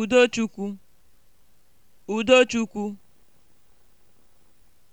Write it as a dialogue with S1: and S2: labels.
S1: Udochukwu Udochukwu